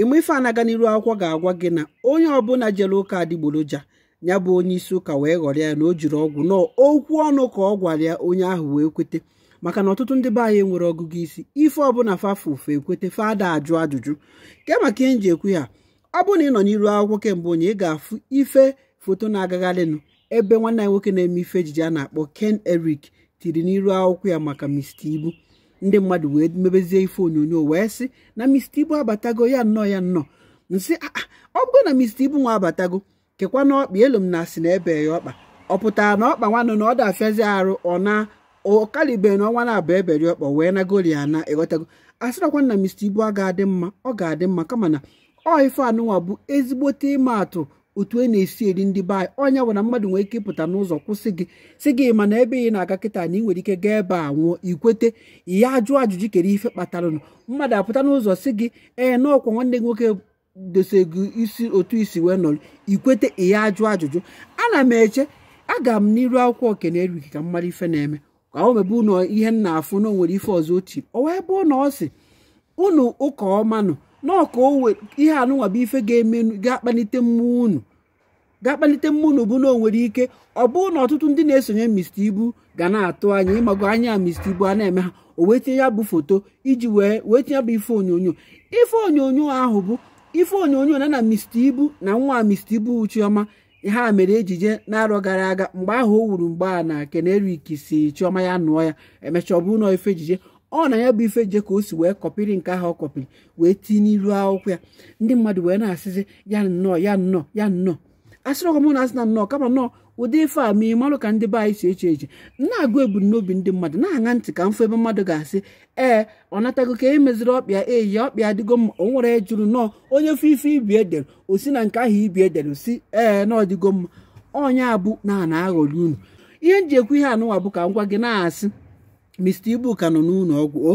ịmụ ife anaga n'iru akwụkwọ ga-agwa gị na onye ọbụla jere ụka adịgboroja ya bụ onye isi ụka wee ghọrọ ya na o jiri ọgwụ nọ okwu ọnụ ka ọ gwara ya onye ahụ wee kweta maka na ọtụtụ ndị be anyị nwere ọgụgụ isi ife ọbụla fafa ekweta ekwete fada ajụ ajụjụ ke maka ihe nji ekwu ya ọ bụrụ na ị nọ n'iru akwụkwọ kemgbe onye ị ga-afụ ife foto na-agagharịnụ ebe nwanne anyị nwoke na-eme ife ejije a na-akpọ Ken Eric tiri n'iru akwụkwọ ya maka Mr. Ibu ndị mmadụ wee mebezie ife onyonyo wee sị na mista Ibu abatago ya nnọọ ya nnọọ nsị ah, ah, ọ bụgo na mista Ibu nwa abatago kekwa na ọkpa elu m na asị na ebe ya ọkpa ọ pụtara na ọkpa nwanụ na ọ dafiazi arụ ọ na ọkalibe na ọnwa na-abụ eberi ọkpa wee na goli ana ịghọtago asịrakwa na mista Ibu a ga-adị mma ọ ga-adị mma kama na ọ ife anụnwa bụ ezigbote ịma atụ otu e na-esi eri ndị be anyị onye bụ na mmadụ nwere ike ịpụta n'ụzọ kwụsị gị si gị mana ebe ị na-aga kịta na ị nwere ike gaa ebe a nwụọ ikwete ihe ajụ ajụjụ kere ife kpatara ụnụ mmadụ apụta n'ụzọ si gị ee na ọkwa nwanne gị nwoke dose gị isi otu isi wee nọrọ ikwete ihe ajụ ajụjụ ana m eche aga m n'iru akwụkwọ okene erughi ka mmadụ ife na-eme ka o mebe ụnọ ihe m na-afụ na o nwere ife ọzọ ochie ọ wee bụ na ọ sị unu ụka ọma n'ọka onwe ihe anụnwa bụ ife ga-eme ga-akpalite mmụọ unu ga-akpalite mmụọ unu bụ na o nwere ike ọ bụ na ọtụtụ ndị na-esonye Mr. Ibu ga na-atụ anya ịmago anya Mr. Ibu a na-eme ha o wee tinye ya bụ foto iji wee wee tinye ya bụ ife onyonyo ife onyonyo ahụ bụ ife onyonyo na na Mr. Ibu na nwa Mr. Ibu Chioma ha mere ejije na-arọ gara aga mgbe ahụ o wuru mgbe a na Ken si Chioma ya nụọ ya emechaa ọ bụrụ na ife ejije ọ na ya bụ ife je ka o si wee kọpịrị nke ahụ ọ kọpịrị wee tinye n'iru akwụkwọ ya ndị mmadụ wee na-asịzi ya nnọọ ya nnọọ ya nnọọ asịrị ọkwa m na-asị na nnọọ kama nnọọ ụdị ife a ma ị marụ ka ndị be anyị si eche eche na-agụ ebumnobi ndị mmadụ na-aṅa ntị ka mfe ebe mmadụ ga-asị ee ọ natago ka e meziri ọkpịa eyi ya ọkpịa adịgo mma o nwere jụrụ nnọọ onye fe ife ibi edere o si na nke ahụ ibi edere si ee na mma ọnya abụ na a aghọrị unu ihe ji ekwu ihe anụwa bụ ka m gwa gị na-asị mista ibu ka nọ n'ụlọ ọgwụ o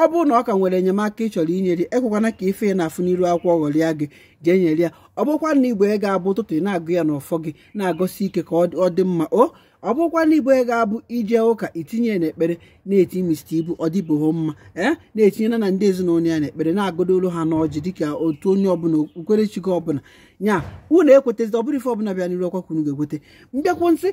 ọ bụrụ na ọ ka nwere enyemaka ị chọrọ inyere ekwekwana ka ife ị na-afụ n'iru akwụkwọ ọghọrịa gị jee nyere ya ọ bụkwa na igbo ị ga-abụ ụtụtụ ị na-agụ ya n'ụfọ gị na-agọsi ike ka ọ dị mma o ọ bụkwa na igbo ị ga-abụ ije ụka itinye ya n'ekpere na-eti mista ibu ọ dịbụghị mma ee na etinye na ndị ezinụlọ ya n'ekpere na-agụdolu ha n'ọjị dịka otu onye ọbụla okpukperechi gị ọbụla nya unu ekwetazi ọ bụrụ ife ọbụla bịa n'iru ọkwa kwunu ga mbịakwụ nsị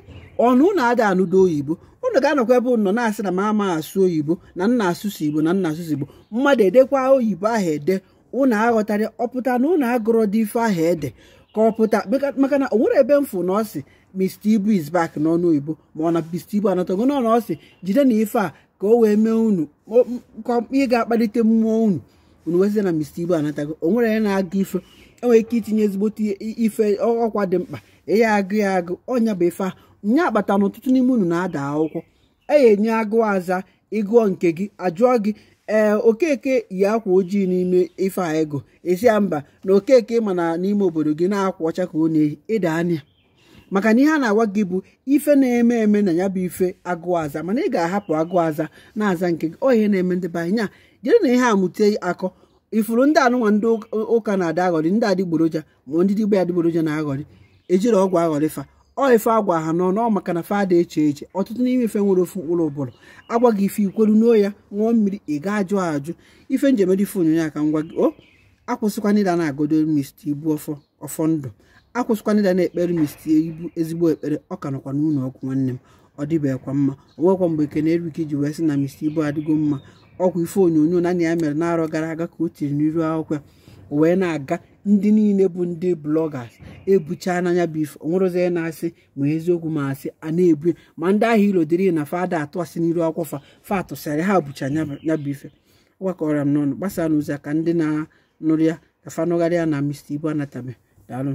ọnụ na-ada anụdo oyibo unu ga-anọkwa ebe nọ na-asị na m ama asụ oyibo na nna asụsụ igbo na nna asụsụ igbo mmadụ edekwa oyibo ahụ ede unu aghọtara ọpụta na unu agụrọ dị ife ahụ ede ka ọ pụta maka na o nwere ebe mfụ na ọ Mr. Ibu is back n'ọnụ oyibo ma ọ na Mr. Ibu anọtago n'ọnụ ọ jide na ife a ka o wee mee unu ka ị ga-akpalite mmụọ unu unu wezie na Mr. Ibu anatago o nwere onye na-aga ife enwere ike itinye ezigbote ife ọkwa dị mkpa ya agụ ya agụ ọnya bụ ife nya akpata na ọtụtụ n'ime unu na-ada akwụkwọ eya enye agụ aza ịgụọ nke gị ajụọ gị ee okeke yi akwa ojii n'ime ife a ego esi ya mba na okeke mana na n'ime obodo gị na-akwa ọcha ka ọ na-eyi ịda anya maka na ihe a na-agwa gị bụ ife na-eme eme na ya bụ ife agụụ aza mana ị ga-ahapụ agụụ aza na-aza nke gị ọ ihe na-eme ndị banye anyị Jiri na ihe a mụte akọ ifuru ndị anụnwa ndị ụka na-ada aghọrị ndị adịgboroja ma ndị digbo ya adịgboroja na-aghọrị ejiri ọgwụ aghọrịfa ọ ife agwa ha nọ nọọ maka na fada eche eche ọtụtụ n'ime ife nwere ofu mkpụrụ ụbụrụ agwa gị ife ikweru n'o ya ṅụọ mmiri ị ga ajụ ajụ ife njemede ife onyonyo aka ngwa gị o akwụsịkwana ịda na-agodo mist ibu ọfọ ndụ akwụsịkwana ịda na-ekpere mist ibu ezigbo ekpere ọ ka nọkwa n'ụlọ ọgwụ nwanne m ọ dịbekwa mma onwekwa mgbe ekene erike iji wee sị na mist ibu adịgo mma ọgwụ ife onyonyo naanị ya mere n'arọ gara aga ka o tiri n'iru akwụkwọ wee na-aga ndị niile bụ ndị blọgas ebuchaa n'anya bif onwerozie na-asị ma eziokwu ma asị a na-ebu ma ndị ahụ ilo dịrị na fada atụasị n'iru akwụkwọ fa fa ha bucha ya bụ ife gwakọrọ m n'ọnụ gbasaa n'ụzọ ka ndị na-anụrụ ya ka fanụgharịa na Mr ibu Anatomy daalụ